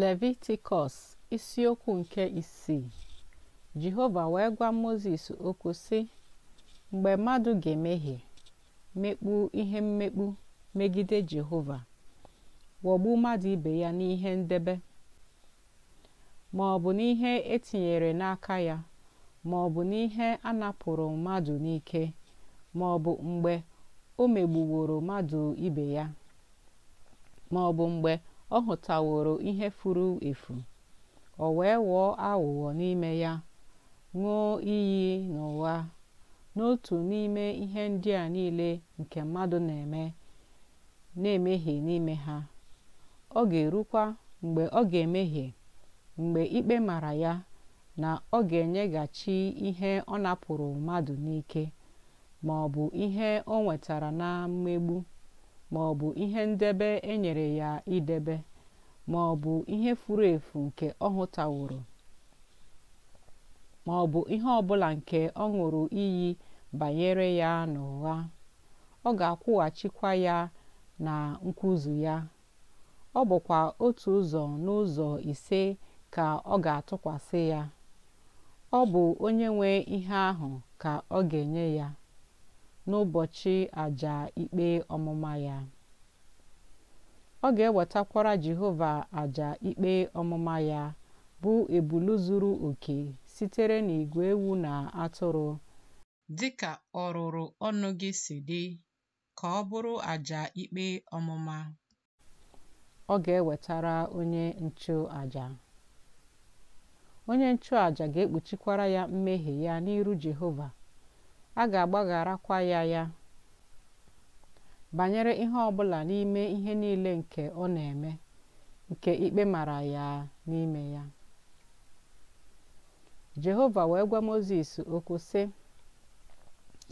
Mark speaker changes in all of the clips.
Speaker 1: Levitikọs isiokwu nke isii Jehova wee gwa Mozis okwu sị mgbe mmadụ ga-emehie mekpu ihe mmekpu megide Jehova wọgbu mmadụ ibe ya n'ihe ndebe ma ọ bụ n'ihe etinyere n'aka ya ma ọ bụ n'ihe a napụrụ mmadụ n'ike ma ọ bụ mgbe o megbuworo mmadụ ibe ya ma ọ bụ mgbe ọ hụtaworo ihe furu efu o wee ghọọ aghụghọ n'ime ya ṅụọ iyi na ụgha n'otu n'ime ihe ndị a niile nke mmadụ na-eme na-emehie n'ime ha ọ ga-erukwa mgbe ọ ga-emehie mgbe ikpe mara ya na ọ ga-enyeghachi ihe ọ napụrụ mmadụ n'ike ma ọ bụ ihe o nwetara na mmegbu Ma ọ bụ ihe ndebe e nyere ya idebe Ma bụ ihe furu efu nke ọ hụtaworo bụ ihe ọbụla nke ọ ṅụrụ iyi banyere ya n'ụgha ọ ga-akwụghachikwa ya na nkwụzu ya ọ bụkwa otu ụzọ n'ụzọ ise ka ọ ga-atụkwasị ya ọ bụ onye nwe ihe ahụ ka ọ ga-enye ya n'ụbọchị àjà ikpe ọmụma ya ọ ga-ewetakwara jehova àjà ikpe ọmụma ya bụ ebulu zuru oke sitere n'igwe ewu na atụrụ Dị dịka rụrụ ọnụ gị si dị ka ọ bụrụ àjà ikpe ọmụma ọ ga-ewetara onye nchụ àjà onye nchụàjà ga-ekpuchikwara ya mmehie ya n'iru jehova a ga-agbagharakwa ya ya banyere ihe ọbụla n'ime ihe niile nke ọ na-eme nke ikpe mara ya n'ime ya jehova wee gwa moses okwu sị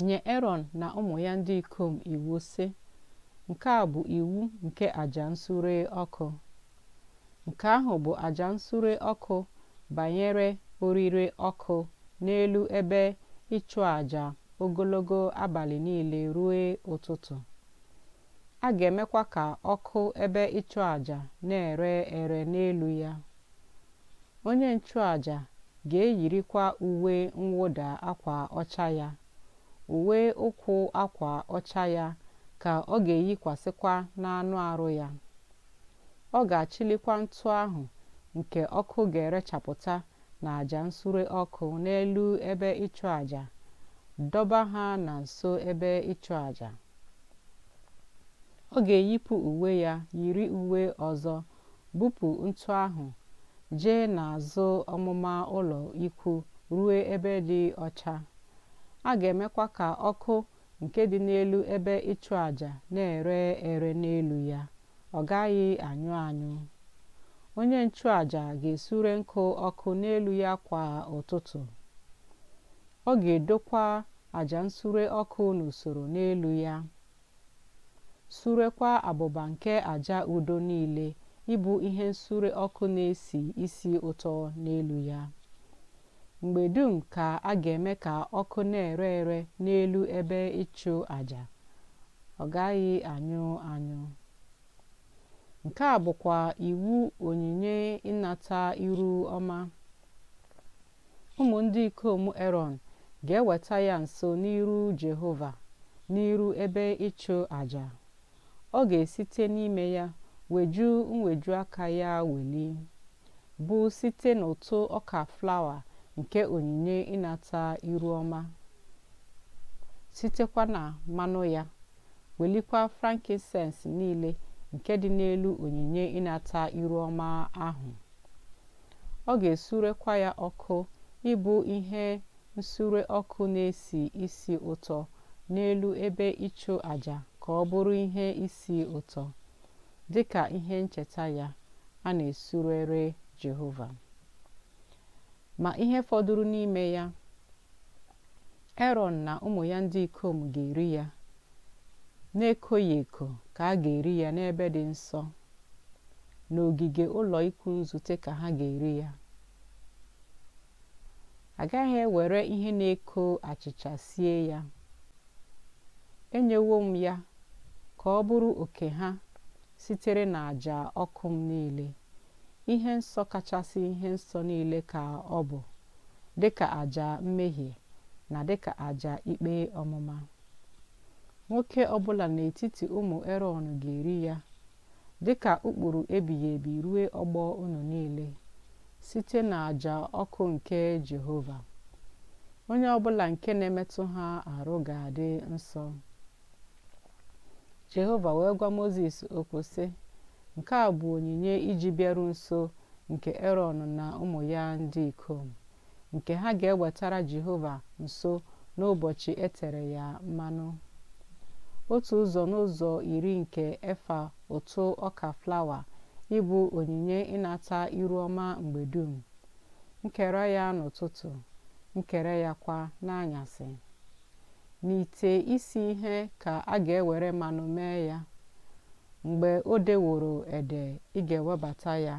Speaker 1: nye erọn na ụmụ ya ndị ikom iwu sị nke a bụ iwu nke aja nsure ọkụ nke ahụ bụ aja nsure ọkụ banyere orire ọkụ n'elu ebe ịchụ aja ogologo abalị niile ruo ụtụtụ a ga-emekwa ka ọkụ ebe ịchụ aja na-ere ere n'elu ya onye nchụaja ga-eyirikwa uwe mwụda akwa ọcha ya uwe ụkwụ akwa ọcha ya ka ọ ga-eyikwasịkwa n'anụ arụ ya ọ ga-achịlikwa ntụ ahụ nke ọkụ ga-erechapụta n'aja nsure ọkụ n'elu ebe ịchụ àjà dọba ha na nso ebe ịchụ àjà ọ ga-eyipụ uwe ya yiri uwe ọzọ bupụ ntụ ahụ jee n'azụ ọmụma ụlọ ikwu ruo ebe dị ọcha a ga-emekwa ka ọkụ nke dị n'elu ebe ịchụ àjà na-ere ere n'elu ya ọ gaghị anyụ anyụ onye nchụaja ga-esure nkụ ọkụ n'elu ya kwa ụtụtụ ọ ga-edokwa àjà nsure ọkụ n'usoro n'elu ya surekwa abụba nke àjà udo niile ịbụ ihe nsure ọkụ na-esi isi ụtọ n'elu ya mgbe dum ka a ga-eme ka ọkụ na-ere ere n'elu ebe ịchụ àjà ọ gaghị anyụ anyụ nke a bụkwa iwu onyinye ịnata iru ọma ụmụ ndị ikom Erọn ga-eweta ya nso n'iru Jehova n'iru ebe ịchụ àjà ọ ga-esite n'ime ya weju mweju aka ya weli bụ site n'ụtụ ọka flawa nke onyinye ịnata iru ọma sitekwa na mmanụ ya welikwa frankincense niile nke dị n'elu onyinye ịnata iru ọma ahụ ọ ga-esurekwa ya ọkụ ịbụ ihe nsure ọkụ na-esi ísì ụtọ n'elu ebe ịchụ àjà ka ọ bụrụ ihe isi ụtọ dị ka ihe ncheta ya a na-esurere jehova ma ihe fọdụrụ n'ime ya erọn na ụmụ ya ndị ikom ga-eri ya na-ekoghị eko ka a ga-eri ya n'ebe dị nsọ n'ogige ụlọ ikwu nzute ka ha ga-eri ya agaghị ewere ihe na-eko achịcha sie ya enyewo m ya ka ọ bụrụ oke ha sitere na ọkụ m niile ihe nsọ kachasị ihe nsọ niile ka ọ bụ dịka àjà mmehie na dịka àjà ikpe ọmụma nwoke ọbụla n'etiti ụmụ erọn ga-eri ya dịka ụkpụrụ ebighị ebi rue ọgbọ unu niile site n'àjà ọkụ nke Jehova onye ọbụla nke na-emetụ ha arụ ga-adị nsọ Jehova wee gwa moses okwu sị nke a bụ onyinye iji bịaru nso nke Erọn na ụmụ ya ndị ikom nke ha ga-ewetara Jehova nso n'ụbọchị e tere ya mmanụ otu ụzọ n'ụzọ iri nke efa ụtụ ọka flawa ịbụ onyinye ịnata iru ọma mgbe dum nkere ya n'ụtụtụ nkere ya kwa n'anyasị n'ite isi ihe ka a ga-ewere mmanụ mee ya mgbe o deworo ede ị ga-ewebata ya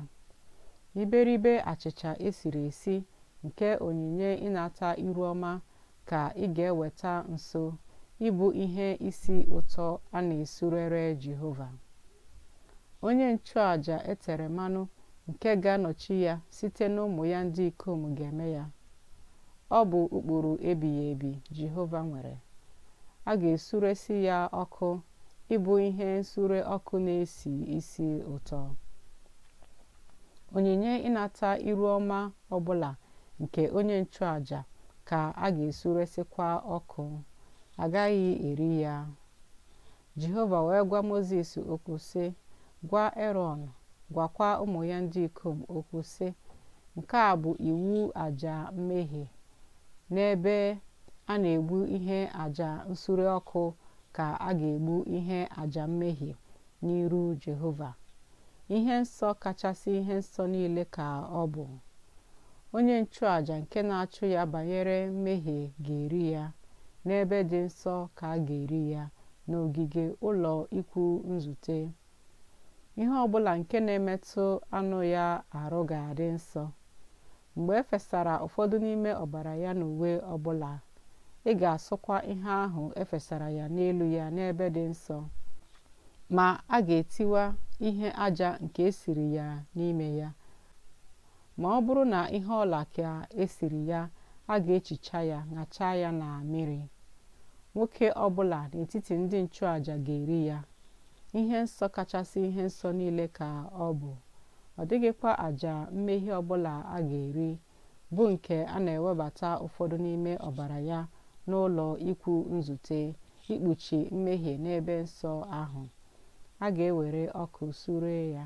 Speaker 1: iberibe achịcha esiri esi nke onyinye ịnata iru ọma ka ị ga-eweta nso ịbụ ihe isi ụtọ a na-esurere jehova onye nchụàjà e tere mmanụ nke ga-anọchi ya site n'ụmụ ya ndị ikom ga-eme ya ọ bụ ụkpụrụ ebighị ebi jehova nwere a ga-esuresi ya ọkụ ịbụ ihe nsure ọkụ na-esi isi ụtọ onyinye ịnata iru ọma ọbụla nke onye nchụàjà ka a ga-esuresikwa ọkụ agaghị eri ya jehova wee gwa moses okwu sị Gwa Erọn gwakwa ụmụ ya ndị ikom okwu sị, Nke a bụ iwu aja mmehie n'ebe a na-egbu ihe aja nsure ọkụ ka a ga-egbu ihe aja mmehie n'iru Jehova ihe nsọ kachasị ihe nsọ niile ka ọ bụ onye nchụaja nke na-achụ ya banyere mmehie ga-eri ya n'ebe dị nsọ ka a ga-eri ya n'ogige ụlọ ikwu nzute ihe ọbụla nke na-emetụ anụ ya arụ ga-adị nsọ mgbe e fesara ụfọdụ n'ime ọbara ya na uwe ọbụla ị ga-asụkwa ihe ahụ efesara ya n'elu ya n'ebe dị nsọ ma a ga-etiwa ihe aja nke esiri ya n'ime ya ma ọ bụrụ na ihe ọla ka esiri ya a ga-echicha ya ṅachaa ya na mmiri nwoke ọbụla n'etiti ndị nchụaja ga-eri ya ihe nsọ kachasị ihe nsọ niile ka ọ bụ ọ dịghịkwa àjà mmehie ọbụla a ga-eri bụ nke a na-ewebata ụfọdụ n'ime ọbara ya n'ụlọ ikwu nzute ikpuchi mmehie n'ebe nsọ ahụ a ga-ewere ọkụ sure ya